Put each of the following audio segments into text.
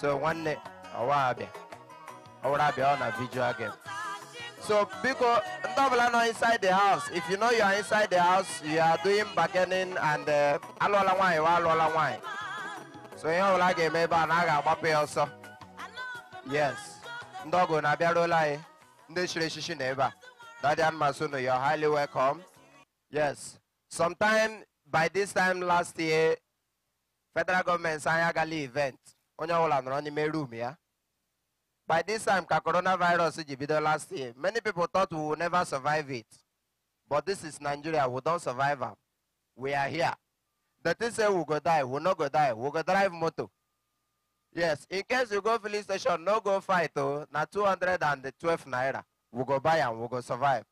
so nwanne ọwa abịa ọwụrụ abịa ọ video again. so because double, ọbụla inside the house if you know you are inside the house you are doing bargaining and uh, alụọla nwaanyị wa alụọla nwaanyị so you know ga ga-eme ebe a na a ga-agbapụ ya ọsọ yes ndi ọgụ na-abịaruola lai. ndị chiri echichi na ebe you are highly welcome yes sometime by this time last year federal government a agala event onye nọrọ n'ime ya by this time ka coronavirus ji bido last year many people thought we will never survive it but this is nigeria we don survive am we are here the thing say we go die we no go die we go drive motor yes in case you go filling station no go fight o oh, na 212 naira we go buy am we go survive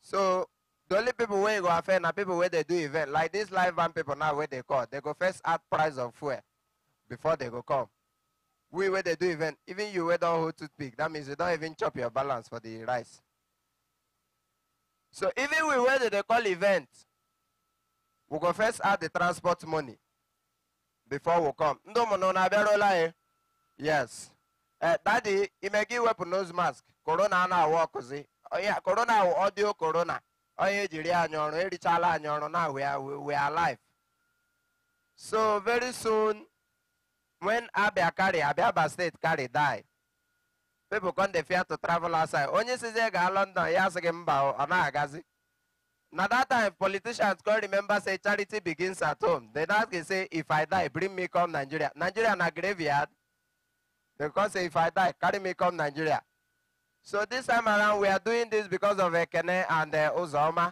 so the only people wey go affect na people wey dey do event like this live band people now wey dey call they go first add price of fuel before they go come. We where they do event, even you where don't hold toothpick, that means you don't even chop your balance for the rice. So even we where they call event, we go first add the transport money before we come. Eh? Yes. Uh, daddy, you may give up a nose mask. Corona na walk, Oh yeah, corona audio corona. Oh yeah, jiri anyono, erichala anyono, now we are, we are alive. So very soon, when Abia carry, Abia Abia State carry die, people come they fear to travel outside. Onye sizie ga London, yes, sị gị mba ọ na-agazi. Now that time, politicians can remember say charity begins at home. They ask can say, if I die, bring me come Nigeria. Nigeria na graveyard. They can say, if I die, carry me come Nigeria. So this time around, we are doing this because of Ekene and uh, Uzoma.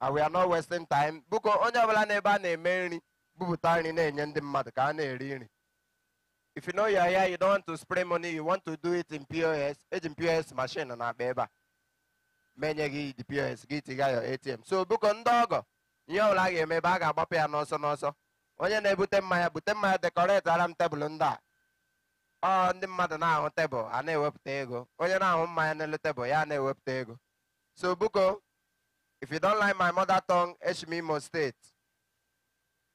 And we are not wasting time. Buko, onye ọbụla n'ebe a na-eme nri, bupụta nri mmadụ ka if you know you're here, you don't want to spray money, you want to do it in POS, it's eh, in POS machine na akpa ebe a menye gị the POS gị tiga your ATM so biko ndị ọgọ ihe ọbụla a ga-eme ebe a ga-agbapụ ya n'ọsọ n'ọsọ onye na-ebute mmanya bute mmanya dekoreti ara m tebụl ndị a ọ ndị mmadụ na-ahụ tebụl a na-ewepụta ego onye na-ahụ mmanya n'elu tebụl ya na-ewepụta ego so biko if you don't like my mother tongue Eshim Imo State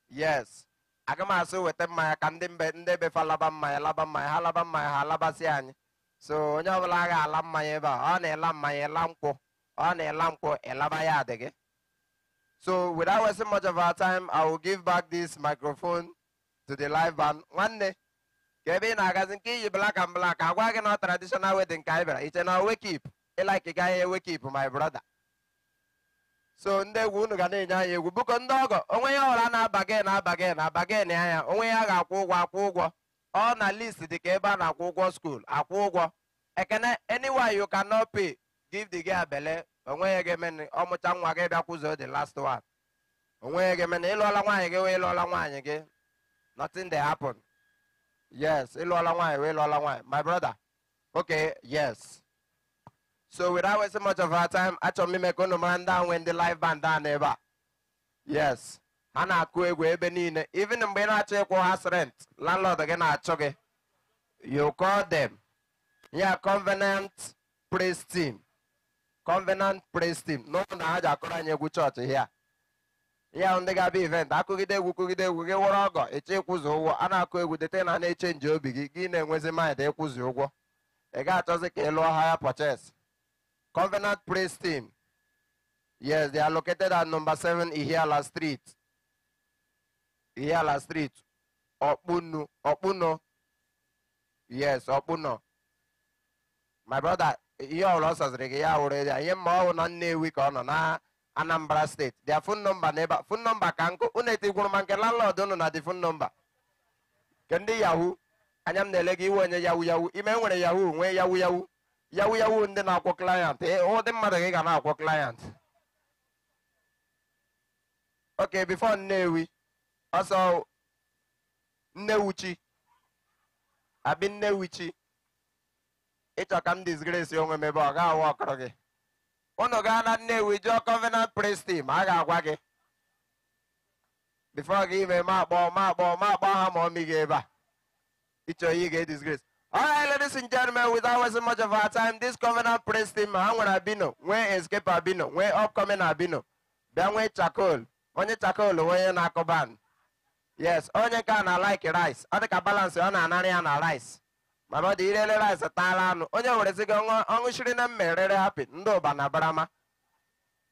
yes aga m asụ weta mmanya ka ndị mbe ndị befa laba mmanya laba mmanya ha laba mmanya ha labasị anyị so onye ọbụla agha ala mmanya ebe a ọ na-ela mmanya ela nkwụ ọ na-ela nkwụ elaba ya adị gị so without wasting much of our time i will give back this microphone to the live band nwanne ka ebe ị na-agazi nke iyi blaka m blaka agwa gị na traditional wedding ka anyị bịara iche na owekip ịlaiki gaghị ewekip my brother so ndị egwu unu ga na-enye anya egwu bụkọ ndị ọgọ onwe ya ọra na-aba gị na-aba gị na-aba gị na anya onwe ya ga-akwụ ụgwọ akwụ ụgwọ ọ na list dị ka ebe a na-akwụ ụgwọ skuul akwụ ụgwọ ekene anywhere you cannot pay give the girl bele onwe ya ga ọmụcha nwa gị bịa the last one onwe ya ga-eme ịlụọla nwaanyị gị wee ịlụọla nwaanyị gị nothing dey happen yes ịlụọla nwaanyị wee ịlụọla nwaanyị my brother okay yes So without wasting much of our time, achọrọ m ime ka unu mara ndị ahụ nwee ndị live band a n'ebe a. Yes, A na-akụ egwu ebe niile. Even mgbe ị na-achọ ịkwụ ha rent, landlord gị na-achụ gị. You call them. Ya Covenant Praise Team. Covenant Praise Team. N'ụlọ na ha ji akụrụ anyị egwu chọọchị hịa. Ya ndị ga-abịa event, akụgide egwu kụgide egwu gị wụrụ ọgọ ịchọ ịkwụzi ụgwọ a na-akụ egwu dete na na-echenji obi gị gị na-enwezi mind ịkwụzi ụgwọ ị ga-achọzi ka ị lụọ ha ya purchase Covenant Praise Team. Yes, they are located at number seven Ihiala Street. Ihiala Street. Okpuno. Okpuno. Yes, Okpuno. My brother, ihe ọrụ ọ sasịrị gị ya wụrụ ya ihe mma ọ wụ na Nnewi ka ọ nọ na Anambra steeti their phone number n'ebe phone number nọmba ka nkụ unu etikwuru ma nke landlord unu na dị fon nọmba nke ndị yahoo anya m na-ele gị iwe onye yahoo yahoo ime nwere yahoo nwee yahoo yahoo yawu yawu ndị na-akwọ klayant ụdị eh, oh, mmadụ gị ga na-akwọ klayant oke bifo nnewi ọsọ nnewuchi abi nnewuchi ịchọ ka m disgresi onwe m ọ ga-awụ ọkụrụ gị ụnụ gaa na nnewi jụọ covenant ma a ga-agwa gị bifo gị ime ma akpọ ma akpọ ma akpọ ha ma gị ebe a ịchọ ihe All right, ladies and gentlemen, without wasting much of our time, this Covenant Praise Team, ha nwere Abino, nwee Escape Abino, nwee Upcoming Abino, bịa nwee Chakol, onye Chakol onye na-akụ Yes, onye nke na like rice, ọ dị ka balance ọ na anara ya na rice. mana ọ irele rice taala anụ, onye were sịgo ọṅụchiri na mmerere hapi ndị ụba na barama.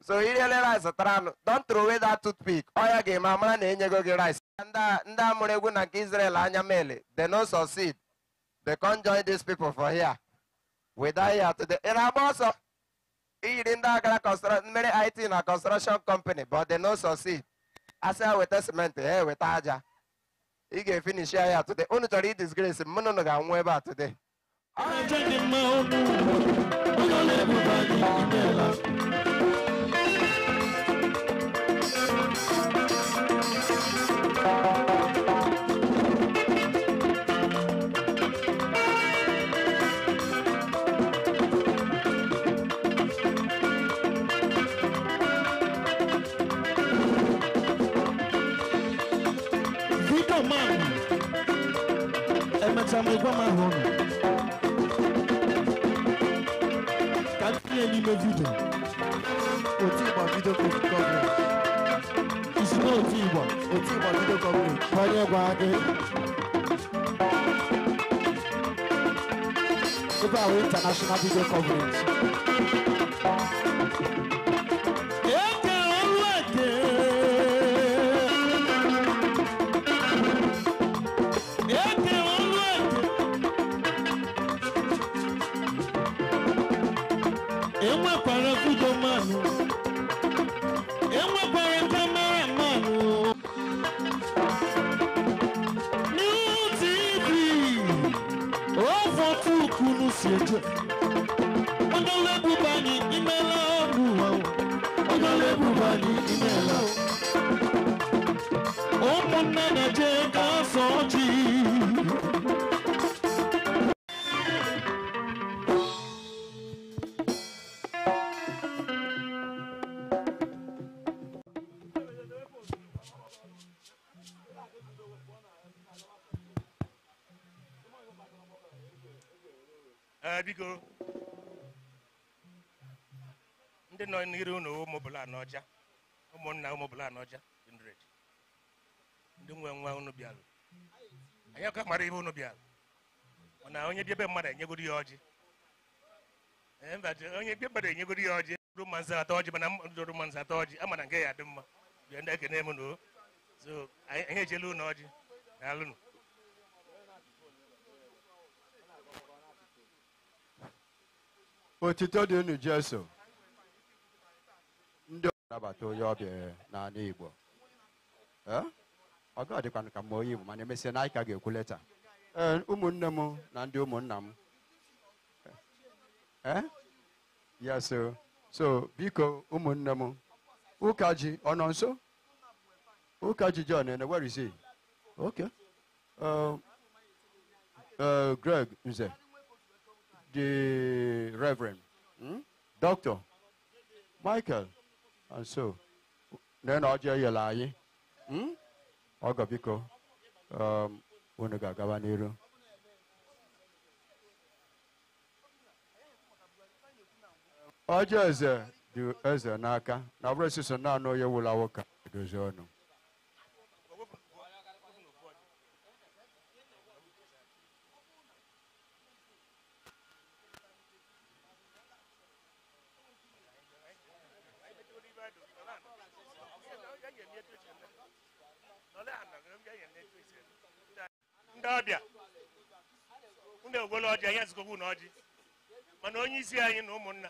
So irele rice tara anụ, don't throw away that toothpick, ọ ya ga-eme amara na enyego gị rice. Ndị a mụrụ egwu na nke Israel anya mele, they no succeed. They can't join these people for here. We die here today. In Aboso, he didn't construction, many IT in a construction company, but they no succeed. I say with a cement, hey, with Aja. He can finish here today. Only to read disgrace, Munoga and Weber today. I'm lóògùn adé. Super International Video conference. enyegodo ya ọjị eh, onye ikpe kpere enyegodo ya ọjị rụ mmanzi atọ ọjị mana mmadụ mmanzi atọ ọjị ama na nke ya dị mma bịa ndị na m noo so anyị ejela ụlọ ọjị daalụnụ otito dị unu jeso ndị nabata onye ọbịa n'ala igbo eh? ọ ga-adịkwanụ ka mma onye igbo mana emesịa na anyị ka ga-ekwu leta ee eh, ụmụnne m na ndị ụmụnna m Eh? ya so so biko ụmụnne m ụka ji ọ nọ nso ụka ji John ene where is he okay um, uh, Greg Nze the Reverend hmm? Dr. Michael and so na ọjọọ yela anyị ọgọ biko um, unu ga-agaba n'iru ọjọ eze dị eze n'aka na ọ bụrụ sịsọ naanị onye wụla nwoke edozi ọnụ ndị ọbịa ndị ọjị anyị ezigbo na ọjị mana onye isi anyị na ụmụnna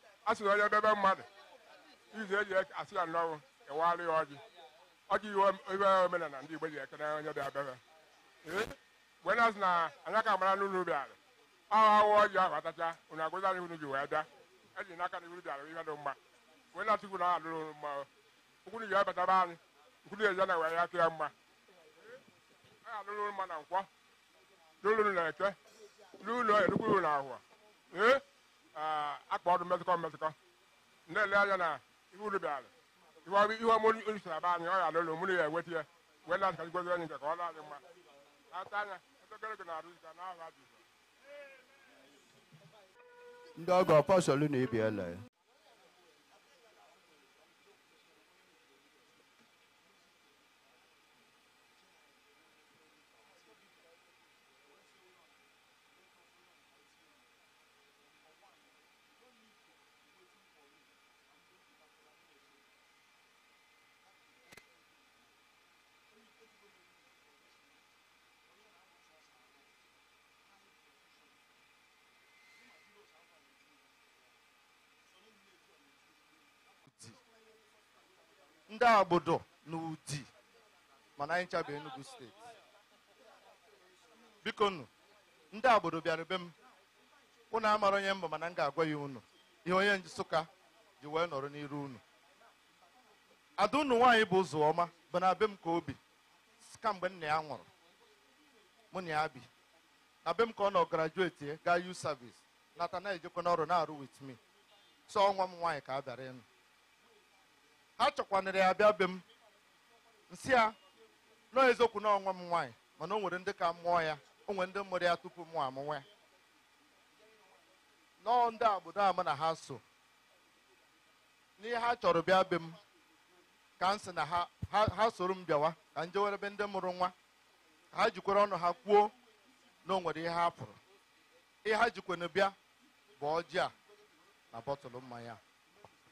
a na onye bebe mmadụ izu eji asị ya nnọọ ewegharị ya ọjị ọjị iwe omenala ndị Igbo ji na onye bịa bebe mgbe na-asị na anya ka mara n'ụlọ ubi ala ahụ ahụ ọjị ahụ atacha unu agụzi anyị unu ji wee bịa eji n'aka na iru ala ihe dị mma mgbe na-asị kwuru ahụ alụrụ mma ụkwụrụ ji ebatara anyị nkwụrụ eji na wee ya kịa mma a alụrụ mma na nkwọ n'ụlọ na eke n'ụlọ erukwuru na ahụọ ee Ah, akpa ọdụ mmetụkọ mmetụkọ na-ele anya na ihe uru bịara ihe ọrụ ihe aba anyị ọrịa ya alụlụ ya enweta ya wee na-asa gozi anyị nke ka ọ na-adị mma ata anya gị na-arụ ka ndị ọgọ pọsọlụ na ibi ya. ndị agbodo na udi mana anyị chabụ Enugu steeti biko nụ ndị agbodo bịara be m unu amara onye mbụ mana m ga-agwa ya unu ihe onye Nsụka ji wee nọrọ n'iru unu ada unu nwaanyị bụ ụzọ ọma bụ na be m ka obi kamgbe nna ya nwụrụ mụ na ya bi na be m ka ọ nọ grajueti gaa u service nata na-ejekwa n'ọrụ na-arụ with me so ọnwa m nwaanyị ka a bịara ịnụ ha chọkwanara ya bịa be m nsị ya nọọ eziokwu na m nwaanyị mana o nwere ndị ka mụọ ya o nwere ndị mụrụ ya tupu mụ amụnwa ya nọọ ndị obodo ama na ha so n'ihe ha chọrọ bịa be m ka m sị na ha soro m bịawa ka m jewere ebe ndị mụrụ nwa ha jikwara ọnụ ha kwuo na o nwere ihe ha pụrụ ihe ha jikwana bịa bụ ọjị a na bọtụlụ mmanya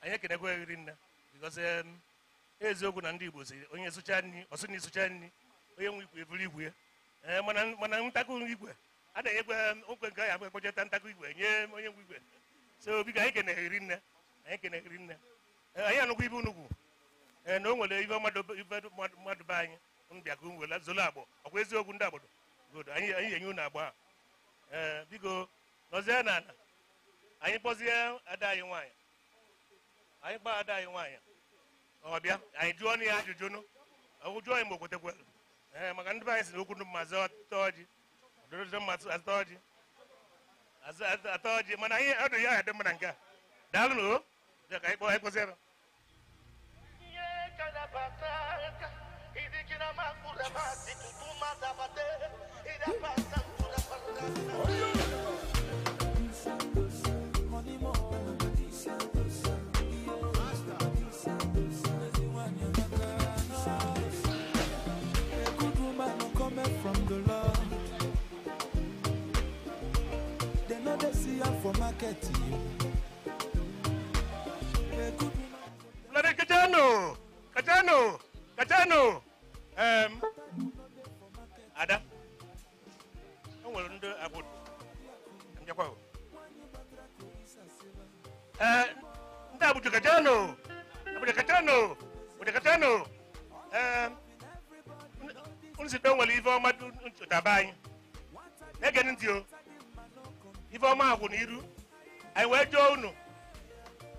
anyị ekenekwa ghiri nne because um, eziokwu na ndị Igbo si onye sụcha nri ọsụ na ịsụcha nri onye nwe igwe eburu igwe ee, eh, mana ntakụ igwe a na-enyekwa um, okwe nke ahụ akpọchata ntakụ igwe nye onye nwe igwe so biko anyị kene keneghiri nne anyị kene keneghiri nne eh, anyị anụkwa ibe unugwu ee eh, na o nwere ibe mmadụ be anyị mbịakụ nwere zolo agbọ ọkwa eziokwu ndị agbado godo anyị anyị enye unu agba ee biko nọzie n'ala anyị kpọzie ada anyị nwaanyị anyị gbaa ada anyị nwaanyị ọbịa anyị jụọ na ya ajụjụ nụ ụjụ anyị mgbe okwetekwe ee maka ndị be anyị si na okwu ndụ mma ọjị ọjị atọ ọjị mana anyị ọdụ ya adị mma nke a daalụ na ka anyị kpọọ for market you. Kajano. Katano! Katano! Um, Ada? I want to about. I'm your Uh, Abuja Katano! Abuja Kajano, Abuja Kajano. Um, Unsi don't believe all my dudes to die. They're getting ọma agwụ na iru anyị wee jụọ unu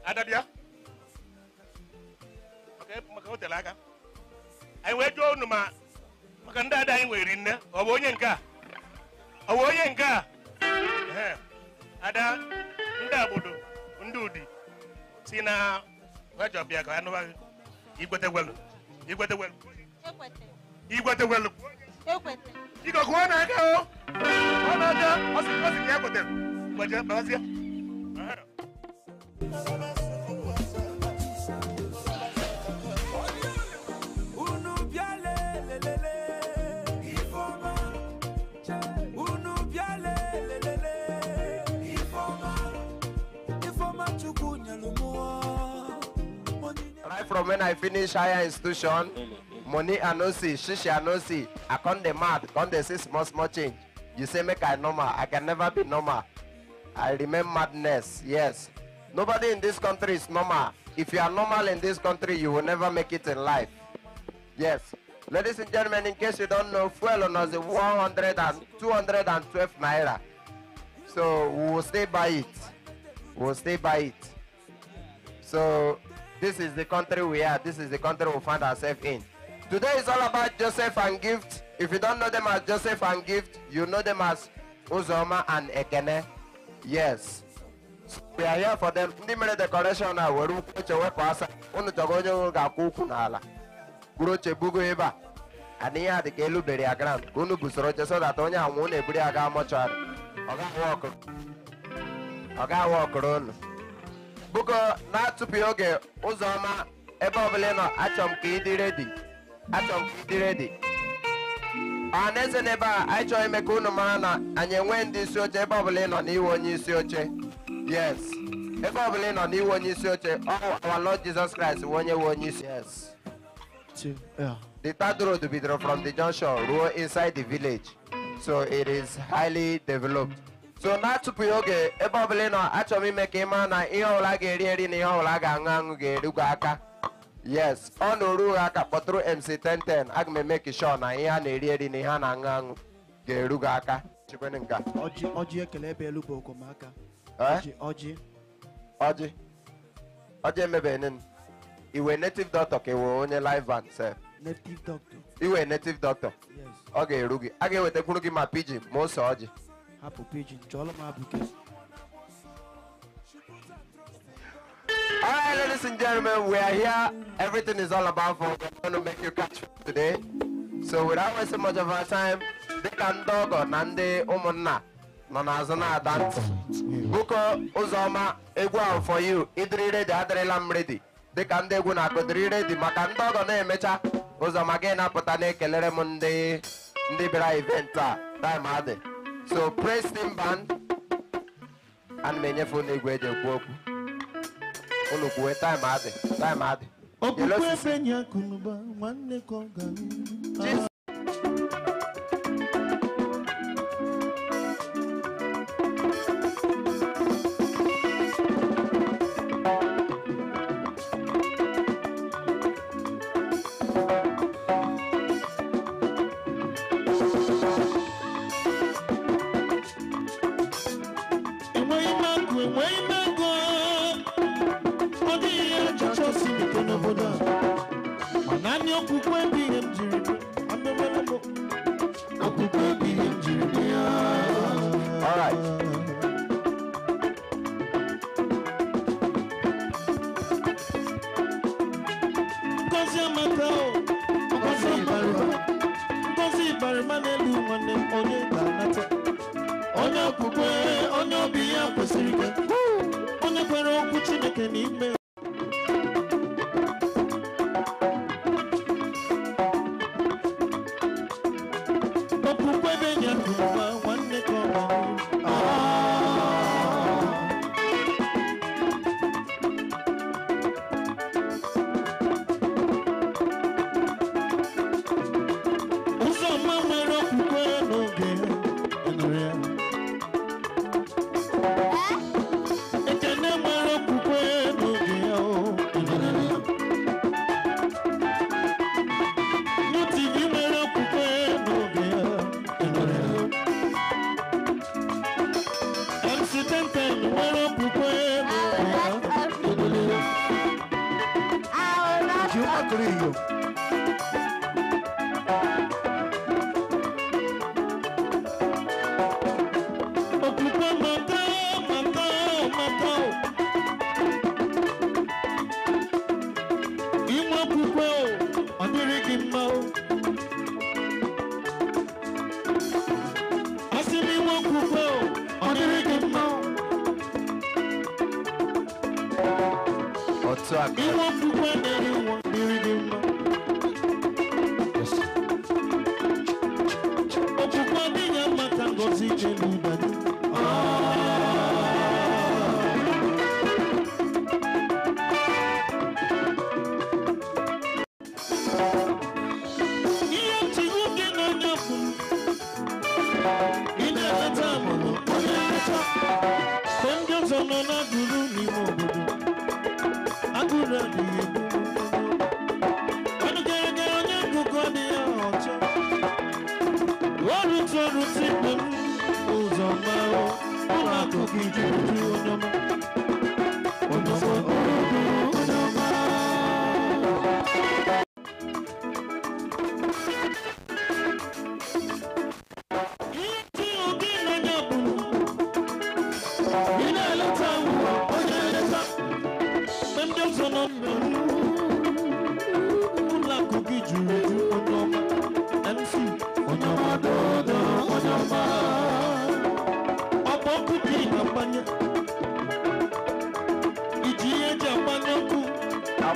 adabịa maka aka anyị wee unu ma maka ndị ada anyị nne ọ bụ onye nke a ọ bụ onye nke a ada ndị agbodo ndị udi si na wejọbịa ka anụbaghị igwetegwelu igwetegwelu igwetegwelu na na Right from when I finish higher institution, money I no see, shishi I no see. I come the mad, come the see small small change. You say make I normal, I can never be normal. I remain madness. Yes. Nobody in this country is normal. If you are normal in this country, you will never make it in life. Yes. Ladies and gentlemen, in case you don't know, fuel on us is 100 and 212 naira. So we will stay by it. We will stay by it. So this is the country we are. This is the country we find ourselves in. Today is all about Joseph and Gift. If you don't know them as Joseph and Gift, you know them as Uzoma and Ekene. yes we are here for them ndị mere decoration a were ukwu oche wepụ asa unu chọg'o onye nwụrụ ga-akwụ ụkwụ n'ala buru oche bugo ebe a ana ihe a dị ka elubere ya ground ka unu busoro oche so that onye anwụ na-eburu ya gaa mọchụarị ọ ga-awa ọkụrụ unu bugo na-atụpụghị oge ụzọ ọma ebe ọbụla ị nọ achọ m ka ị dị redi achọ m ka ị dị redi ọhaneze n'ebe a anyị chọrọ ime ka unu mara na anyị enwee ndị isi oche ebe ọbụla ị nọ onye isi oche yes ebe ọbụla ị nọ n'iwu onye isi oche ọ our Lord Jesus Christ wee onye wee onye isi yes the third road bidoro from the junction ruo inside the village so it is highly developed so na-atụpụghị oge ebe ọbụla ị nọ achọrọ m ime ka ị mara na ihe ọbụla ga-eri eri na ihe ọbụla ga-aṅụ aṅụ ga-erugwu aka yes ọ oru ha aka kpọtụrụ mc1010 aga m eme kishọ na ihe a na-eri eri na ihe a na-aṅụ aṅụ ga-eru gị aka chikwenụ ọjị ekele ebe elu bụ okomaka eh? ọjị ọjị ọjị emebeghị iwe native doctor ka iwe onye live van sef iwe native doctor ọ ga-eru gị a ga-ewetakwuru gị ma pidgin ma ose ọjị hapụ m abụ All right, ladies and gentlemen, we are here. Everything is all about for we're going to make you catch today. So without wasting much of our time, they can ọgọ na ndị nanazana dance. bụko ụzọma egwu for you ịdịrị de adịrịla m They can de guna na-akụdịrị redi maka ndi ọgọ na-emecha ụzọma gị na-apụta na-ekelere m ndị ndị time adị so praise team band and m enyefe ụnụ egwu eji ekwu unu kwuwe taịm adị taịm adị okpukpe ebe nye akụnụba nwanne ka ọ ga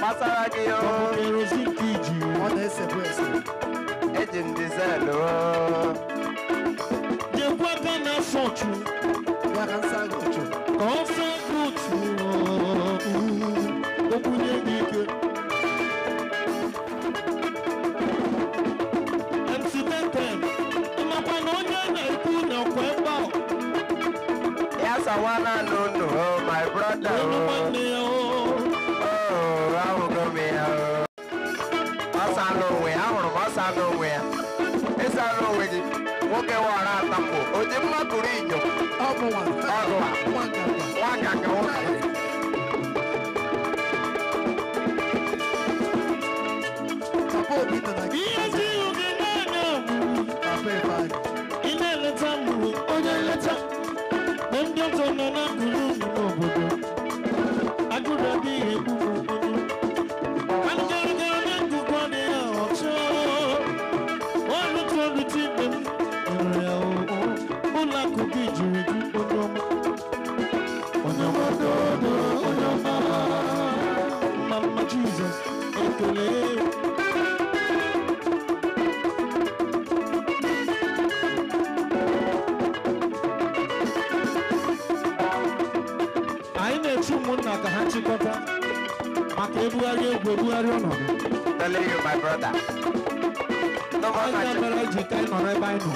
gbasara gị kerozin ka iji ọ na-esebe ese eji m dizel jekwa gana fọchụ gwara nsaghị ọchụ ka ọ fee buutu okwunye gị ike mc10 ịmakwa na onye na-ekwu na kwe mgba ya sawana nụ nụ my brother aghị onwe ya ịsa aghị onwe gị nwoke wara atapụ oji mma kụrụ inyo ọgụwa nwa nganga nwoke Ị na-eleta mgburu onye nleta na ndị Jesus and to live. anyị na-echu ụmụnna ka ha chịkọta maka ebugharị egwu ebugharị ọnọdụ anyị ga-abara ji ka anyị nọrọ ebe anyị nọ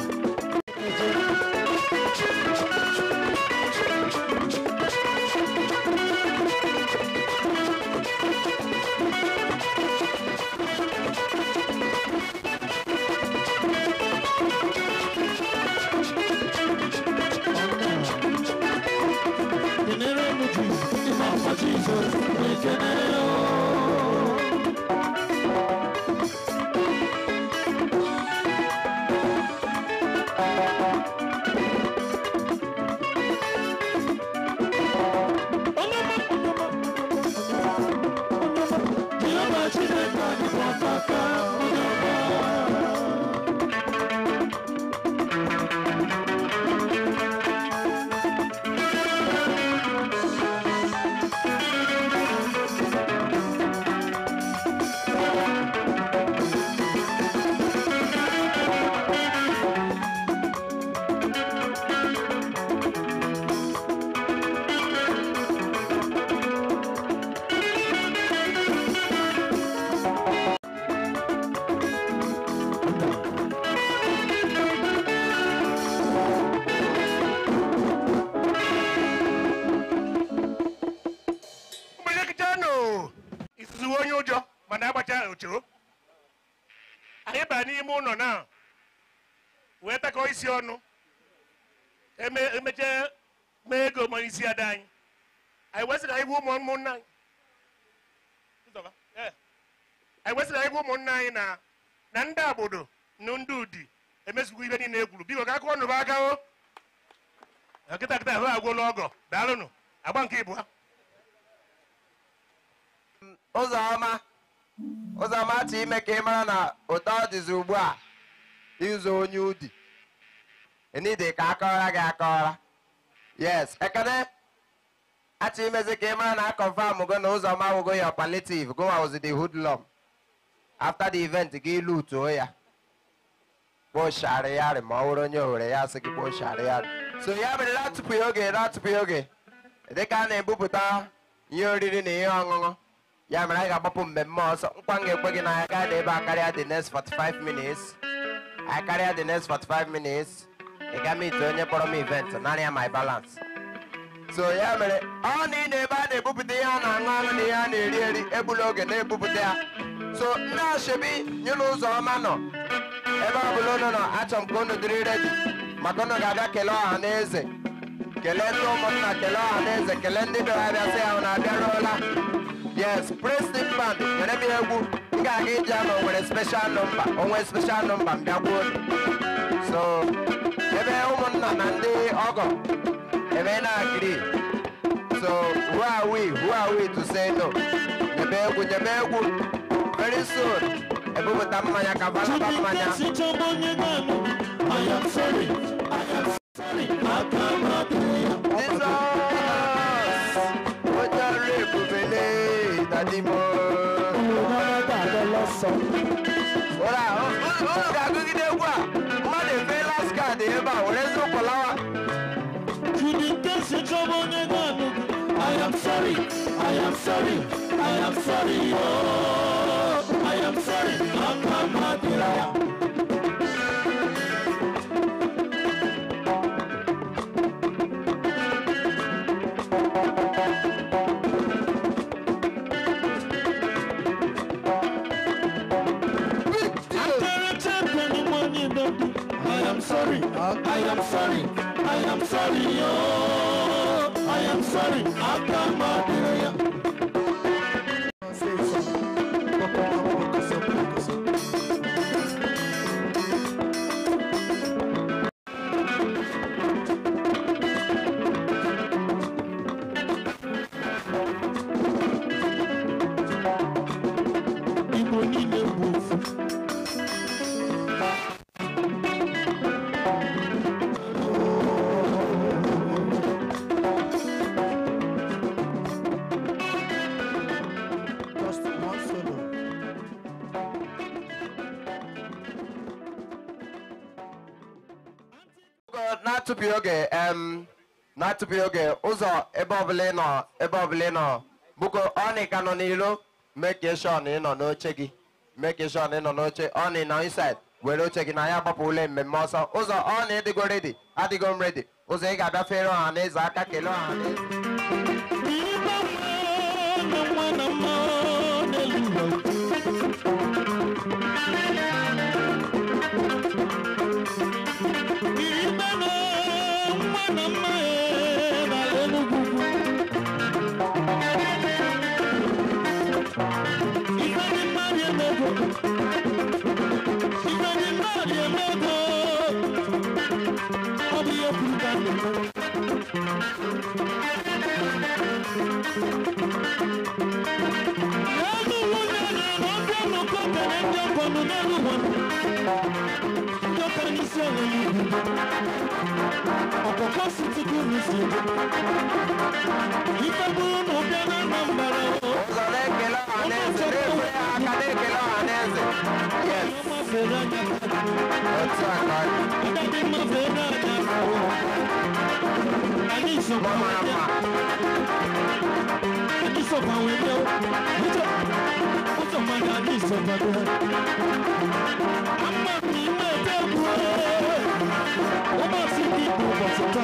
esi superlative Goa was the hoodlum. After the event, gị lutuo oh, ya kpochara oh. ma ọ onye ohere ya sị gị kpochara so ya bụrụ na tupu oge na na-ebupụta ihe oriri na ihe ọṅụṅụ ya mere anyị ga-agbapụ mmemme ọsọ nkwa ga gị na anyị gaa a karịa the next 45 minutes I carry the next 45 minutes. They ga me to onye kpọrọ m event, naanị my balance. so ya mere ọ na ị na-ebe a na-ebupụta ihe a na-aṅụ aṅụ na ihe a na-eri eri egbula oge na-ebupụta ya so ndị ashebi nyụlụ ụzọ ọma nọ ebe ọ bụla unu nọ achọ m ka unu dịrị redi maka ụnụ ga-abịa kelee ọha na eze kelee ndị ụmụnna kelee ọha na eze kelee ndị bịara sị ya na abịaruola yes Preston band nwere m ihe egwu m ga-aga ije ama onwere special nọmba onwe speshal nọmba m bịakwuo so ebe ụmụnna na ndị ọgọ agree. So who are we? Who are we to say no? the nyebegu. Very soon. Ebubuta mmanya kavala ba mmanya. I am sorry. I am sorry. I cannot be. am sorry, I am sorry, oh, I am sorry, Papa Matilaya. I am sorry, I am Um, na-atụpụghị oge ụzọ ebe ọbụla ị ịnọ ebe ọbụla ị nọ bụko ka nọ n'ilo meke shọn ị nọ n'oche gị meke shọn ị nọ n'oche ọnị na inside were oche gị na ya gbapụ ule mmemme ọsọ ụzọ ọnị dịgo redi adịgo m redi ụzọ ị ga-abịafere ọha na eze aka kelee ọha na eze Ụzọ na-ekele ọha na-eze, na-ekele ọha na-eze. ferrada. Ota de ma ferrada. Ali so pa wede. Ali so pa wede. Oto. Oto ma da ali so pa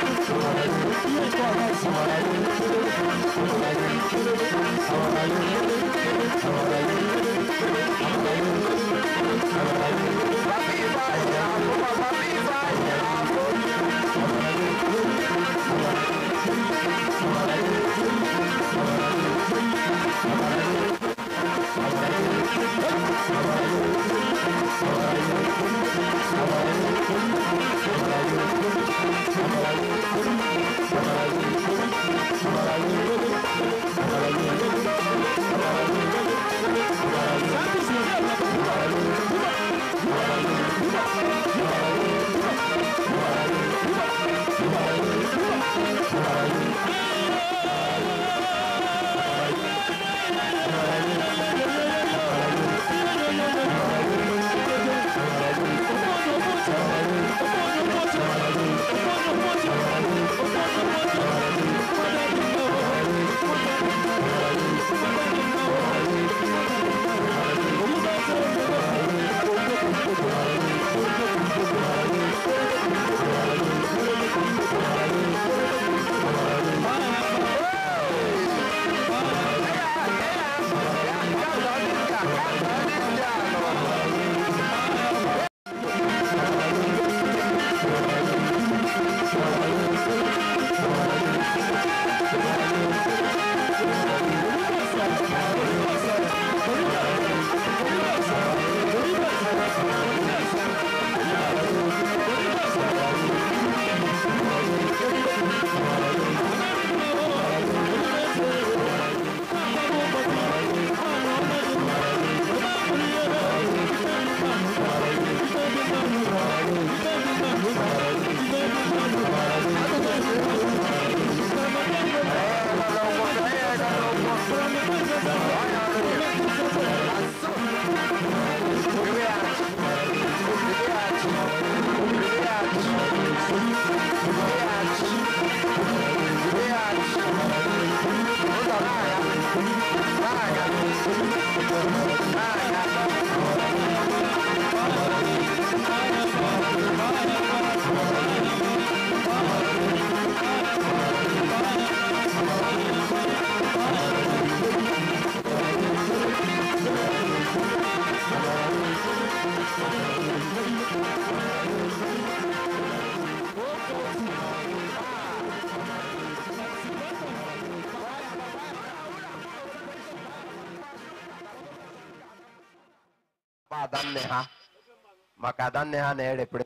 ada nne ha na-erepere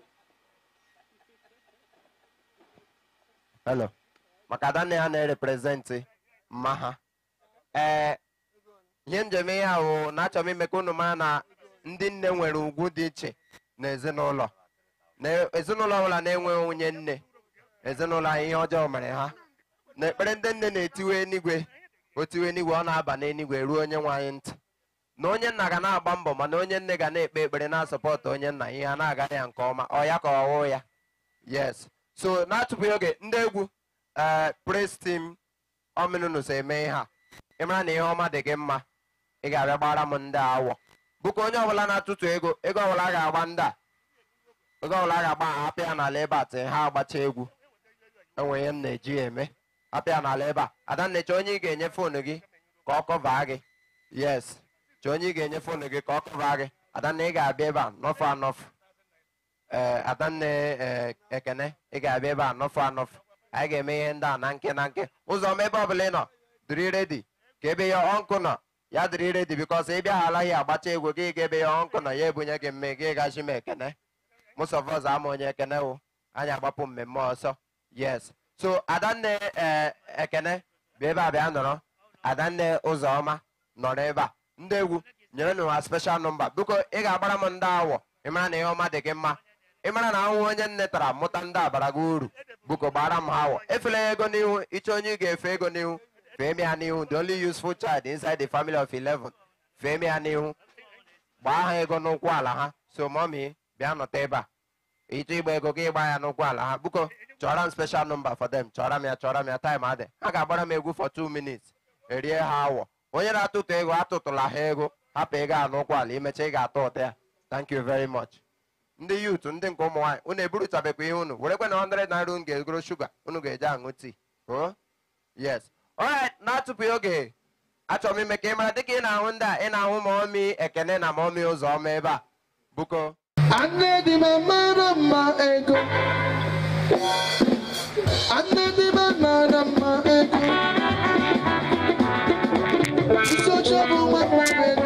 hello maka ada nne ha na mma ha ihe njem ihe ahụ na achọ m ime ka unu mara na ndị nne nwere ugwu dị iche na ezinụlọ na ezinụlọ ọbụla na-enweghị onye nne ezinụlọ ihe ọjọọ mere ha na ekpere ndị nne na-etiwe enigwe otiwe enigwe ọ na-aba n'enigwe ruo onye nwe anyị ntị na onye nna ga na-agba mbọ mana onye nne ga na-ekpe ekpere na-asọpọtụ onye nna ihe a na-aga ya nke ọma ọ ya ka ọwụ ya yes so na-atụpụghị oge ndị egwu ee eh, praise team ominunus eme ihe a ịmara na ihe ọma dị gị mma ị ga-abịa gbara m ndị awọ bụka onye ọbụla na-atụtụ ego ego ọbụla ga-agba ndị a ego ọbụla ga-agba apịa n'ala ebe a ha agbacha egwu enwe ihe m na-eji eme apịa n'ala ebe a adannecha onye ị ga-enye foonu gị ka ọ kọvaa gị yes chọọ onye ị ga-enye foonu gị ka ọ kụba gị adanna ị ga-abịa ebe a nọfụ anọfụ ee eh, adanna eh, ekene ị ga-abịa ebe a nọfụ anọfụ anyị ga-eme ihe ndị a na nke na nke ụzọ ma ebe ọbụla ị nọ dịrị redi ka ebe ya ọnkụ nọ ya dịrị redi bikọs ị bịa ya agbacha egwu gị ga ebe ya ọnkụ nọ ya ebunye gị mme gị gachi m ekene mụsọvọz ama onye ekene wụ anyị agbapụ mmemme ọsọ yes so adanne eh, ekene bụ ebe a bịa nọrọ adanne ụzọma nọrọ ebe a ndị egwu nyere nụ ha special nọmba biko ị ga-agbara m ndị awọ ịmara na ihe ọma dị gị mma ịmara na ahụhụ onye nne tara mụta ndị abara gị uru biko gbara m ha awọ efela ya ego n'ihu ịchọ onye ị ga-efe ego n'ihu fee m ya n'ihu the only useful child inside the family of 11 fee m ya n'ihu gbaa ha ego n'ụkwụ ala ha so mọmi bịa nọta ebe a ịchọ ịgba ego gị ịgba ya n'ụkwụ ala ha biko chọrọ m special nọmba for them chọrọ m ya chọrọ m ya taịm adị ha ga-agbara m egwu for 2 minutes erie ha awọ onye na-atụtụ ego atụtụla ha ego hapụ ego a n'ụkwụ ala imecha ị ga-atọ ụtọ ya thank you very much ndị yut ndị nke ụmụ nwaanyị unu eburutabekwa ihe unu werekwa na 100 naira unu ga-egoro shuga unu ga eje aṅụ tii yes na-atụpụghị oge achọm m ime ka ị mara dịka ị na-ahụ ndị a ị na-ahụ ma ọmị ekene na ma ọmị ụzọ ọma ebe a buko Anne di me mara mma ego Anne di me mara mma ego It's So trouble, my friend.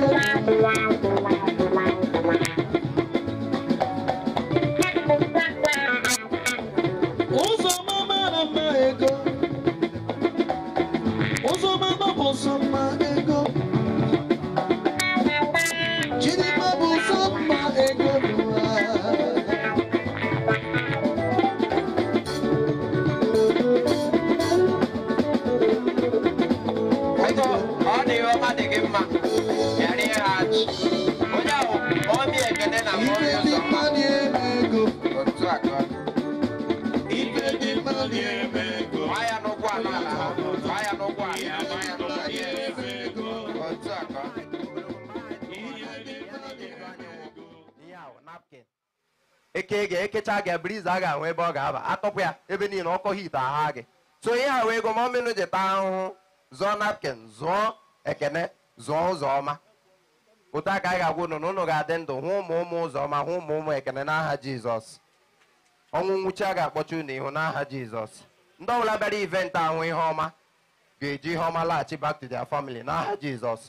napkin eke ga ekecha gị briza a ga-ahụ ebe ọ ga-aba atọpụ ya ebe niile ọkọ hit agha gị so ihe ahụ ego goma omenụ ji taa ahụhụ zụọ napkin zụọ ekene zụọ ụzọ ọma otu aka anyị ga-agwa unu na unu ga-adị ndụ hụ ụmụ ụmụ ụzọ ọma hụ ụmụ ụmụ ekene n'aha jizọs ọnwụ nwụchi a ga akpọcha unu ihu n'aha jizọs ndị ọbụla bịara ivent ahụ ihe ọma ga-eji ihe ọma laghachi back to their family n'aha jizọs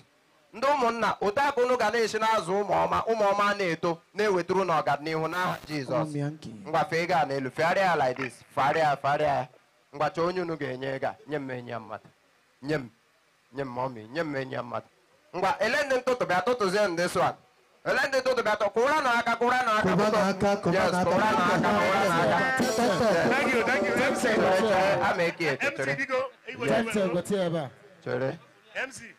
ndị ụmụnna ụtọakụ unu ga na-esi n'azụ ụmụọma ụmụọma na-eto na ewetụrụ n'ọganihu n'aha jizọs ngwa a n'elu fegharịa ya like fegharịa fegharịa ya mgbacha onye unu ga-enye gaa nye m enye mmadụ nye m nye m ọmị nye m enye mmadụ ngwa ele ndị ntụtụ bịa tụtụzie ndị ele ndị ntụtụ bịa kwụra na n'aka kwụra na aka kwụra na n'aka kwụra n'aka.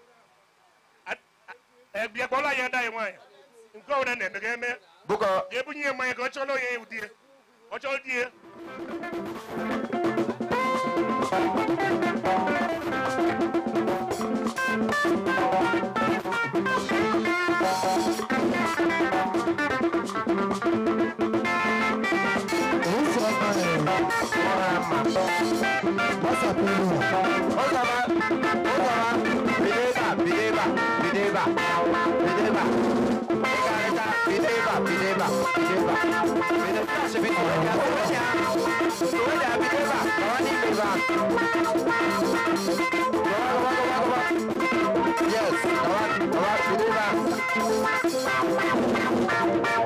bịa kpọrọ ya ada ya nwaanyị nke ọbụla na-eme ga eme ga-ebunye ya mmanya ka ọ chọrọ ya ewu di ọ chọrọ di ya What's up, Yes, ẹja tó ń ṣe ó yes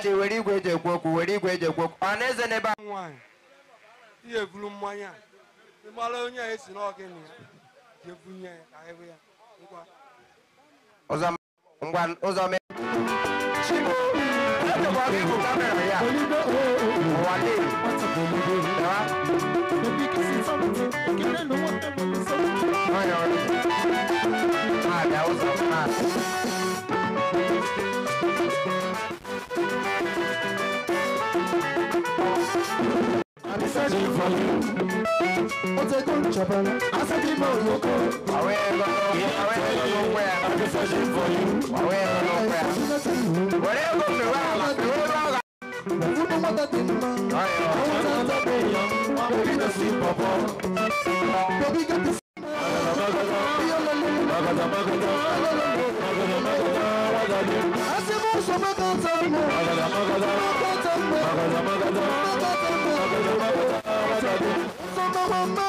Amadi were igwe eji ekwu okwu were igwe eji ekwu okwu ọ na-eze n'ebe a nwaanyị ihe eburu mmanya ịgbara onye si esi na ya ebunye ya ya ngwa ụzọ mee chimo searching for you. What's a good I'm searching for you. I'm searching for you. not I Mama.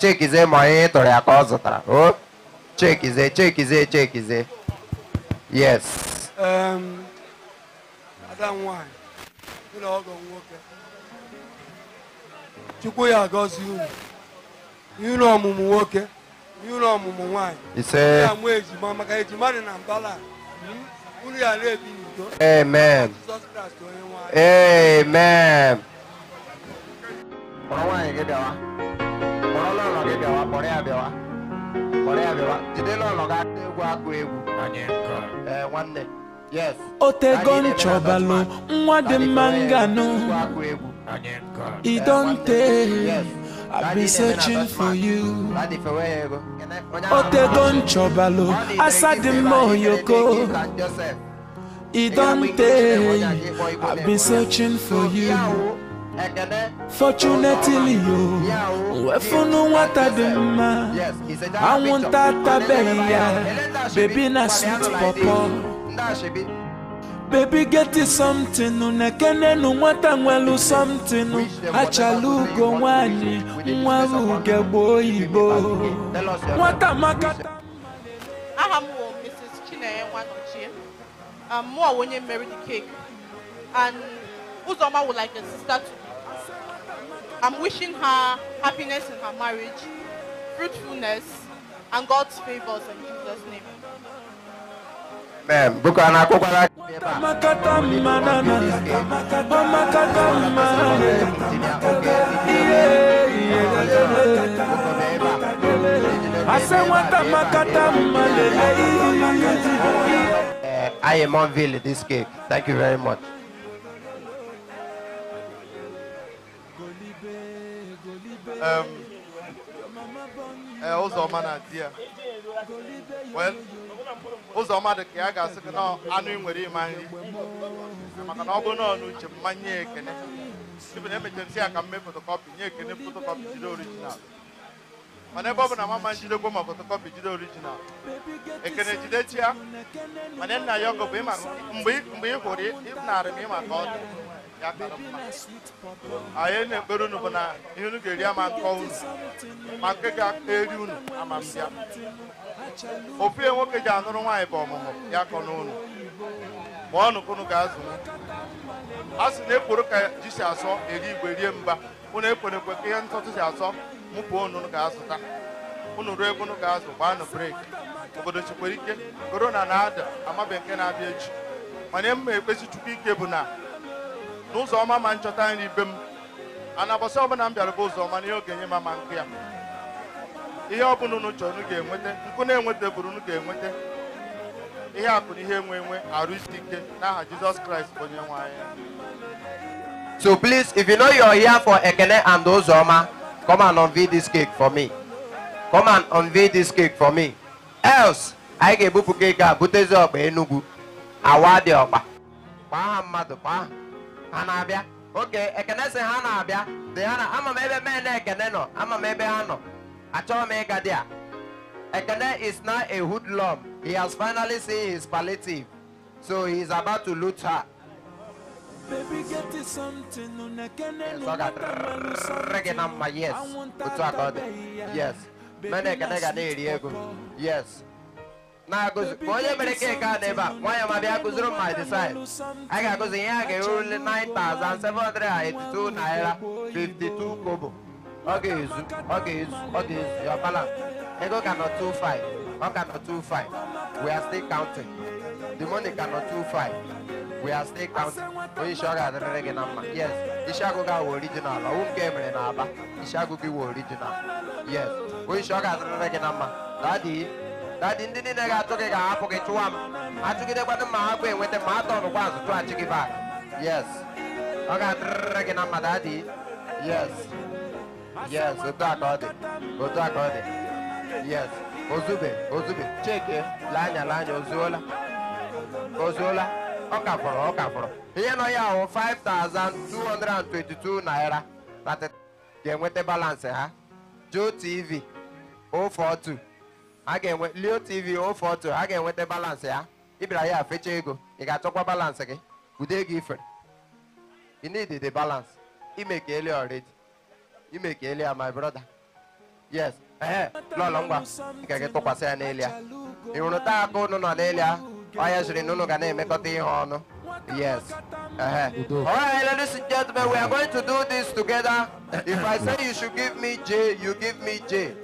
chekize ma onye ịtụrụ ya ka ọ zụtara o chekize chekize chekize yes ada nwanyị ụlọ ọgọ nwoke chukwu ya agọzi unu n'ụlọ ọmụmụ nwoke n'ụlọ ọmụmụ nwaanyị ise ya mụ ejima maka ejima dị na mbala unu ya na-ebi n'udo amen amen nwaanyị gị bịawa ọlọ́run gịbịa wa kpọrọ ya bịawa kpọrọ ya bịawa jide n'ụlọ ga akụ egwu akụ egwu ee nwanne yes otego nchọbalụ nwa dị mma nganụ i don tey i be searching for you otego nchọbalụ asa dị mma oyoko i don tey i be searching for you Fortunately yo wefunu nwata dị mma anwụnta atabeghị ya baby na sweet pọpọ bebi geti somtinu nekenenu nwata nwelu somtinu achala ugo nwanyị nwere ugegbe oyibo nwata makata aha m bụ Mrs. Chinenye Nwanochie um, mụ onye mmeri the cake and Uzoma wụ like a sister to I'm wishing her happiness in her marriage, fruitfulness, and God's favors in Jesus' name. Amen. Uh, I am on Ville this cake. Thank you very much. Um, eh, ụzọma na di ya ụzọma dị ka ya ga-asị gị na anụ ị nwere ịma nri maka na ọ bụrụ na ọ n'uche mma nye ekene na emechara nsị ya ka m mee fotokọpị nye ekene fotokọpị jide orijinal mana ebe ọ bụ na mama njidekwa ma fotokọpị jide orijinal ekene jidechi ya mana nna ya ọgọ bụ mgbe ị hụrụ ịnarị m ịma ka ọ dị anyị na-ekpere unu bụ na ihe unu ga-eri ama nkọ unu ma nke ga-eri unu mbịa ofu ya nwoke ji anụrụ nwaanyị bụ ọmụmụ ya kọ n'ụlọ ma ọnụ ka unu ga-azụ a sị na ekworo ka ji si asọ eri igwe rie mba unu ekwere ka ihe ntụtụ si asọ mụpụ unu ga-azụta unu ruo ebe ga-azụ gbaanụ breki obodo chekwara ike korona na-ada amabe nke na-abịa echi mana mma ekpesi chukwu ike bụ na n'ụzọ ọma ma nchọta nri be m ana bọsị ọbụla m bịara bụ ụzọ ọma na ihe ogenye ma ma nke ya ihe ọbụla unu chọrọ unu ga-enweta nkụ na-enweta bụrụ unu ga-enweta ihe akụ na ihe enwe enwe arụ isi ike n'aha Jizọs Kraịst bụ onye nwe So please, if you know your here for Ekene and Ozoma, come and unveil this cake for me. Come and unveil this cake for me. Else, anyị ga-ebupụ cake a butezi ọgba Enugu awa dị ọkpa kpaa ha mmadụ kpaa ha na-abịa oke ekene sị ha na-abịa dị ha na ama m ebe men ekene nọ ama m ebe ha nọ achọghị ekene is now a hoodlum he has finally seen his palliative so he is about to loot her Baby, get you something. Yes, I got reggae number. Yes, yes. Yes, na-agụzi onye mere keki a dị ebe nwaanyị nwanyị ma bịa a ga-agụzi ihe a ga-erule 9,782 naira 52 kobo ọ ga-ezu ọ ga-ezu ọ ga-ezu ya we are still counting the money we are still counting isi ọ ga gị na mma yes isi original dadị ndị niile ga-achụ gị ga-ahapụ gị chụwa m achụgidekwana ma ha bụ enweta ma atọnụ kwa azụ chụghachi gị bak yes ọ ga-adịrịrị gị na mmadụ adị yes yes otu a ọ dị otu a ọ dị yes ozube ozube cheke lee anya ozuola ozuola ọ ka fọrọ ọ ka fọrọ ihe nọ ya ahụ 5222 naira na ga-enweta balansị ha JOTV 042 a ga-enwe leotv ofe oh, otu a ga-enweta balansị ya ịbịara ya fecha ego ị ga-achọkwa balansị gị ude ego ifere you need the balance Ele already imekele uh, my brother yes ee eh, eh. lọlọ ngwa nke gị tụkwasị ya n'elu ya ị hụrụ taa aka ụnụ nọ n'elu ya onye jiri na ụnụ ga na-emekọta ihe ọnụ yes eh, alright ladies and gentlemen we are going to do this together if i say you should give me j you give me j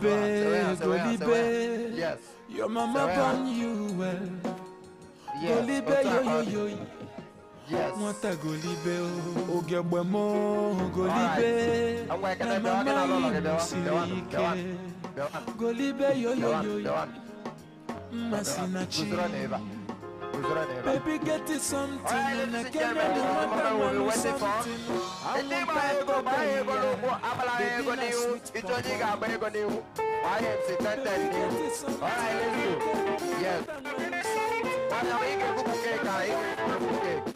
Golibé, Golibé. Yes. Your mama born you well. Golibé, yo, yo, yo. Yes. Mwata Golibé, oh. Ogebwe mo, Golibé. Na mama inu sirike. Golibé, yo, yo, yo. Masina chi. Guzurone eva. Baby, get it something. Right, and I can't remember when we went for. The name I go buy, I go logo, Abala, I go new. It's only got I go new. I am sitting new. All right, let's go. Yes. But I'm going to cook a cake.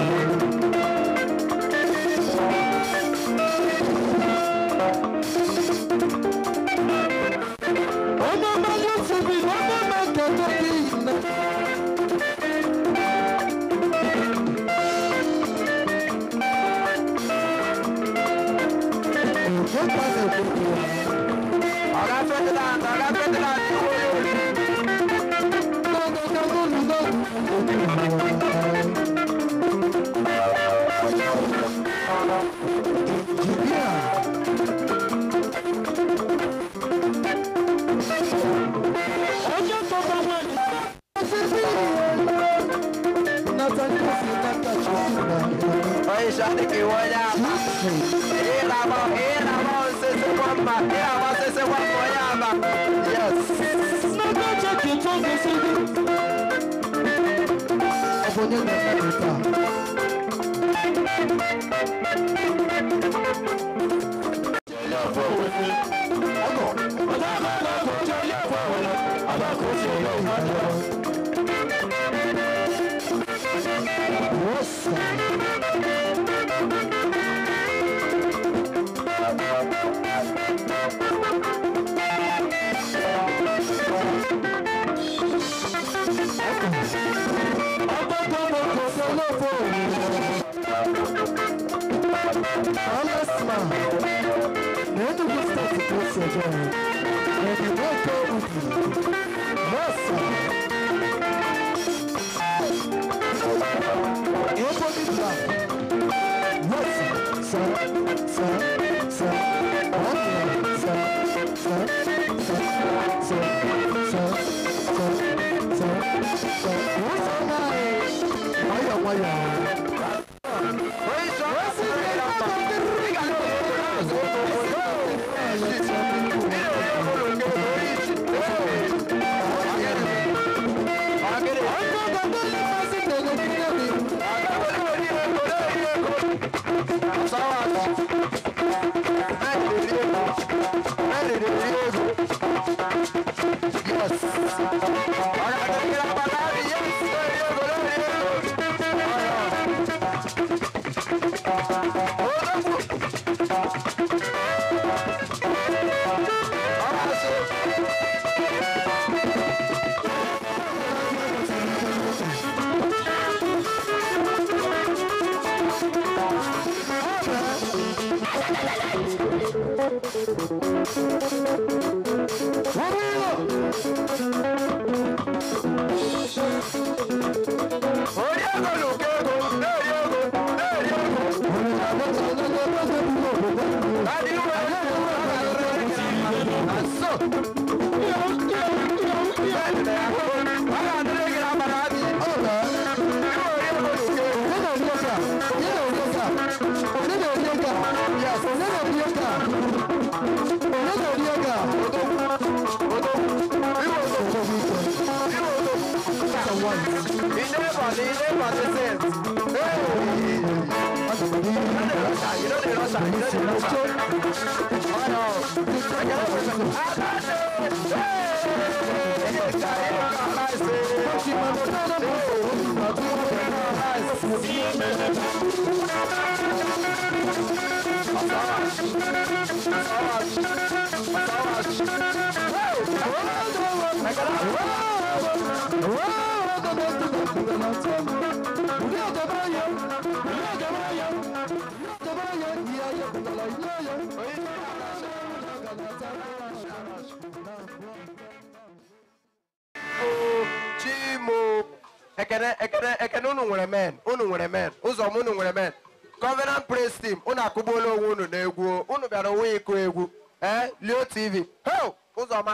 Gracias. 있다. 아, nwere men unu nwere men ụzọ m unu nwere men Covenant Praise tim unu akụgbuola onwe unu n'egwu unu bịara onwe ịkụ egwu ee Leo TV ho ụzọma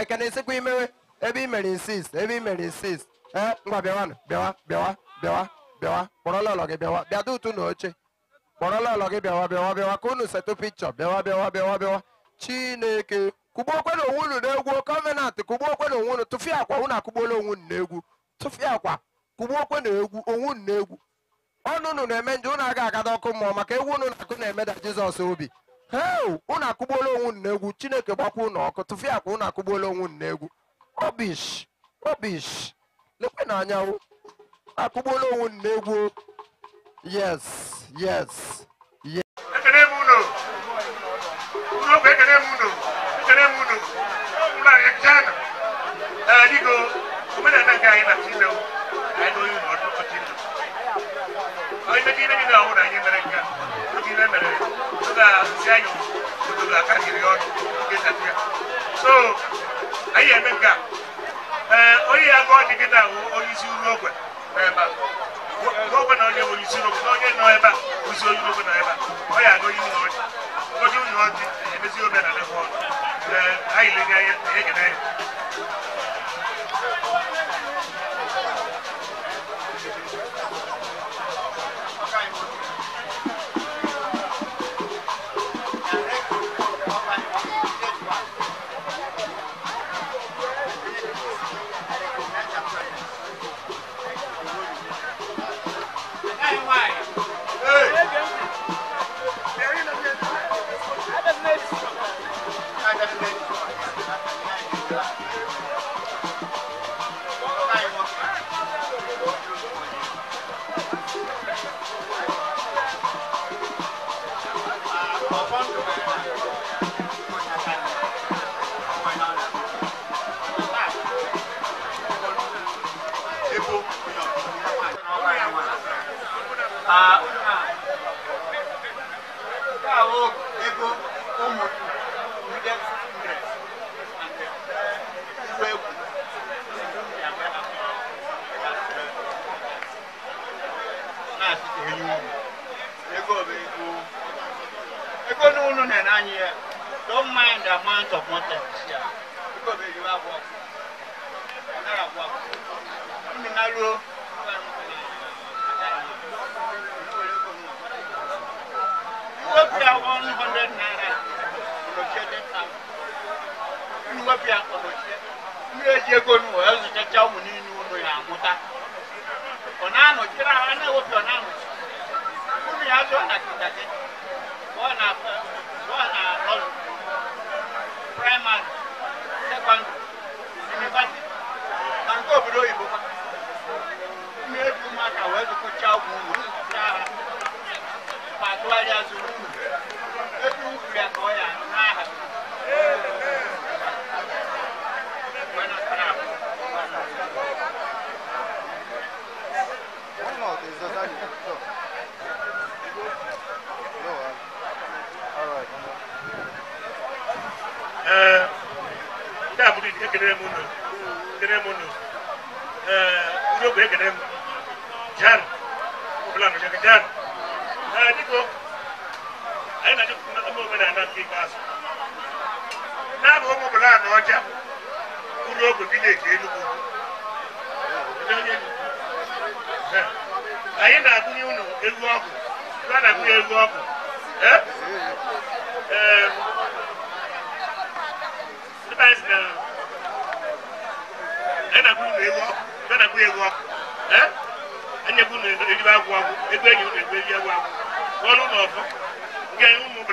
ekene esikwa imewe ebe i mere insist ebe i mere insist ee ngwa bịawanụ bịawa bịawa bịawa bịawa gị bịawa bịa na oche kpọrọla gị bịawa bịawa bịawa ka unu setụ pikchọ bịawa bịawa bịawa bịawa chineke kụgbuo okwenụ onwe unu n'egwu Covenant kụgbuo onwe akwa unu akụgbuola onwe unu egwu akwa kụgbu na egwu onwu na egwu ọnụ unu na-eme nje ụnụ aga agada ọkụ mmụọ maka egwu unu na-akụ na-emeda jizọs obi heo unu akụgbuola onwu na egwu chineke gbakwa ụnụ ọkụ tụfịa akwa unu akụgbuola onwu na egwu obish obish lekwe na anyanwụ akụgbuola onwu na egwu yes yes yes m unu unu okwu ekene m unu ekene m unu ụlọ anyị jana dịgo omenala nke anyị na chinewu I know you not to continue. I may be in our own America, but in America, to the Zion, i the Carrion, get up here. So, a gap.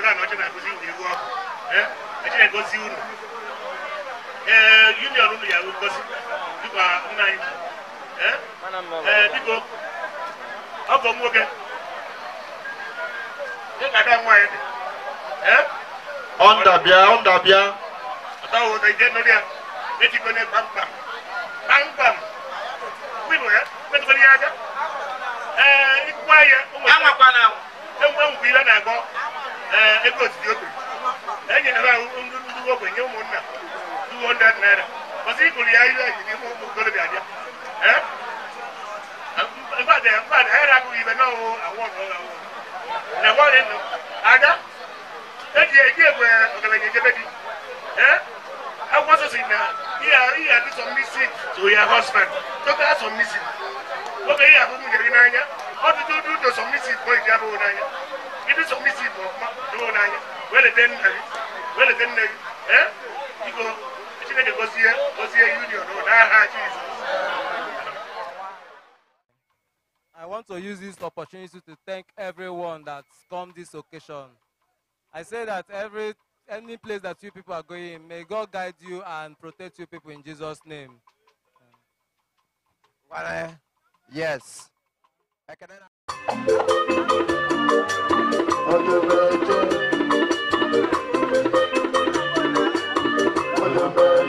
akwadaa na ɔkyɛ na akosi wuli wɔ ɛ ɛkyɛ na ɛkɔsi wulu ɛɛ union no yɛ ɔkɔsi dukɔ nnan ɛ ɛɛ dikɔ ɔbɔ mu kɛ ɛ kaka mu ayɛ ɛ. ɔndabia ɔndabia. ɔtɔ wo ɔtɔ ìdí ɛnɔ díẹ̀ eti kɔ ne pampam pampam wíwọ yɛ mɛtɔ kɔ ne yɛ aka ɛɛ ikú ayɛ. ɛwɔ kpa na. ɛwɔ ɛwɔ kpi lɛ na ɛgbɔ. Eh, ego otiti okiri enyere ndị ndị ogbenye nye ụmụnna 200 naira ọsị ịkụrụ ya ihe eji n'ime ụmụ okorobịa bịa eh? mgbada mgbada ha agụghị ibe n'ọwụ awọ ada eji eji egwe ọgaranya ejebe di eh? akwụkwọ nsọ na ihe adị sọ mmisi to ya husband toke asọ mmisi oge ihe ahụ m nyere gị n'anya ọtụtụ ụdụ sọ mmisi bụ iji abụghị n'anya I want to use this opportunity to thank everyone that's come this occasion. I say that every any place that you people are going, may God guide you and protect you people in Jesus' name. Yes. What a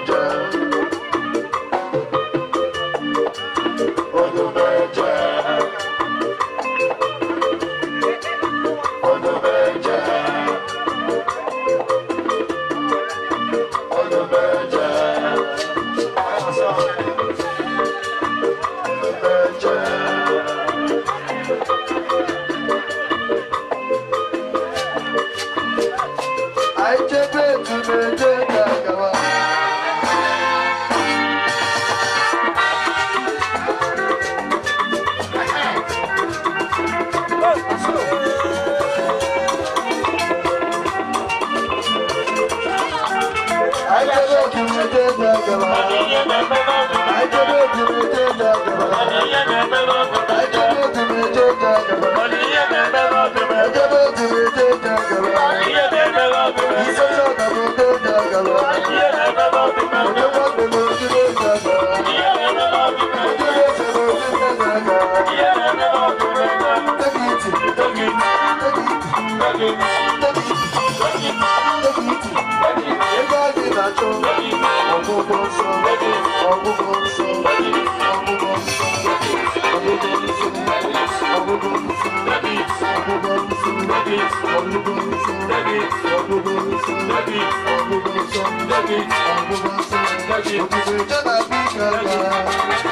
beats, on the boots, the beats, on the boots, the beats, on the boots, the beats, on the boots, the beats, on the boots, the beats, on the boots, the beats,